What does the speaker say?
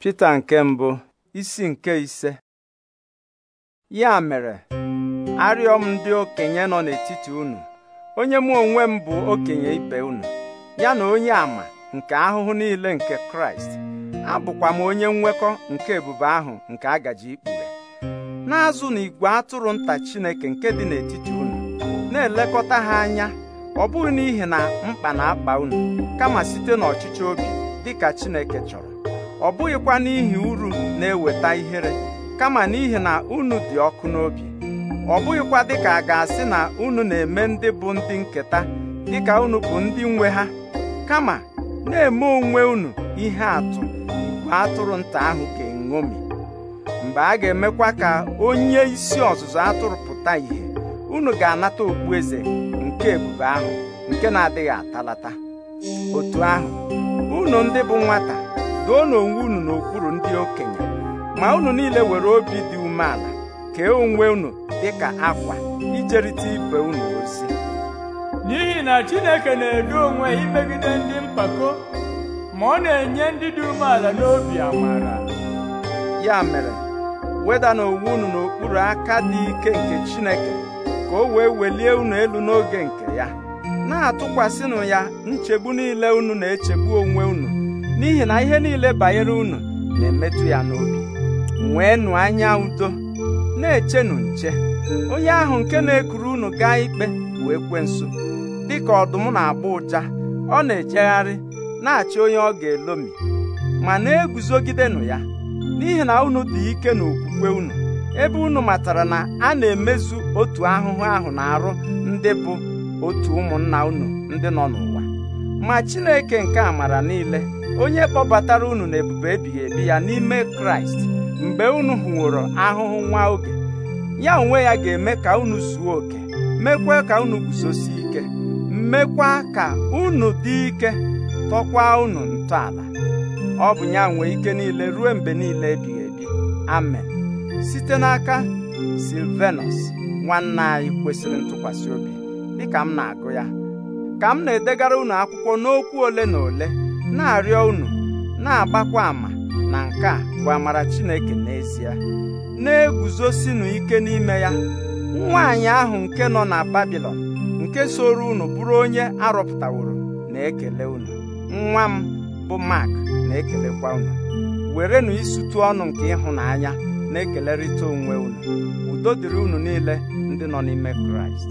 Pita nke mbụ isi nke ise ya mere arịọ m ndị okenye nọ n'etiti unu onye mụ onwe m bụ okenye ibe unu ya na onye ama nke ahụhụ niile nke Kraịst abụkwa m onye nwekọ nke ebube ahụ nke agaji ikpughe na-azụ na igwe atụrụ nta Chineke nke dị n'etiti unu na-elekọta ha anya ọ bụghị n'ihi na mkpa na-akpa unu kama site n'ọchịchị obi dịka Chineke chọrọ ọ bụghịkwa n'ihi uru na-eweta ihere kama n'ihi na unu dị ọkụ n'obi ọ bụghịkwa dịka a ga-asị na unu na-eme ndị bụ ndị nketa dịka unu bụ ndị nwe ha kama na-eme onwe unu ihe atụ igwe atụrụ nta ahụ ka eṅomi mgbe a ga-emekwa ka onye isi ọzụzụ atụrụ pụta ìhè unu ga-anata okpu eze nke ebube ahụ nke na-adịghị atalata otu ahụ unu ndị bụ nwata doonụ onwe unu n'okpuru ndị okenye ma unu niile were obi dị umeala kee onwe unu dị ka akwa ijerịta ibe unu ozi n'ihi na Chineke na edu onwe imegide ndị mpako ma ọ na-enye ndị dị umeala n'obi amara ya mere weda onwe unu n'okpuru aka dị ike nke Chineke ka o wee welie unu elu n'oge nke ya na-atụkwasịnụ ya nchegbu niile unu na-echegbu onwe unu n'ihi na ihe niile banyere unu na-emetụ ya n'obi nweenụ anya udo na-echenụ nche onye ahụ nke na-ekuru unu gaa ikpe bụ nso, dịka ọdụm na-agba ụja ọ na-ejegharị na-achị onye ọ ga-elomi ma na-eguzogidenụ ya n'ihi na unu dị ike n'okwukwe unu ebe unu matara na a na-emezu otu ahụhụ ahụ na-arụ ndị bụ otu ụmụnna unu ndị nọ n'ụwa ma Chineke nke amara niile onye kpọbatara unu ebube ebighị ebi ya n'ime kraịst mgbe unu hụworo ahụhụ nwa oge ya onwe ya ga-eme ka unu zuo oke mekwa ka unu guzosi ike mekwa ka unu dị ike tọkwa unu ntọala ọ bụ ya nwee ike niile ruo mgbe niile ebighị ebi amen site n'aka silvenus nwanne anyị kwesịrị ntụkwasị obi dịka m na-agụ ya ka m na-edegara unu akwụkwọ n'okwu ole na ole na-arịọ unu na-agbakwa ama na nke a bụ amara Chineke n'ezie na-eguzosinu ike n'ime ya nwaanyị ahụ nke nọ na Babilọn nke soro unu bụrụ onye arọpụtaworo na-ekele unu nwa m bụ Mark na-ekelekwa unu werenụ isutu ọnụ nke ịhụnanya na-ekelerịta onwe unu udo dịrị unu niile ndị nọ n'ime Kraịst